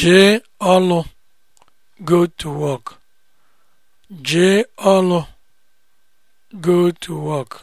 Jee ọlụ go to work. Jee ọlụ go to work.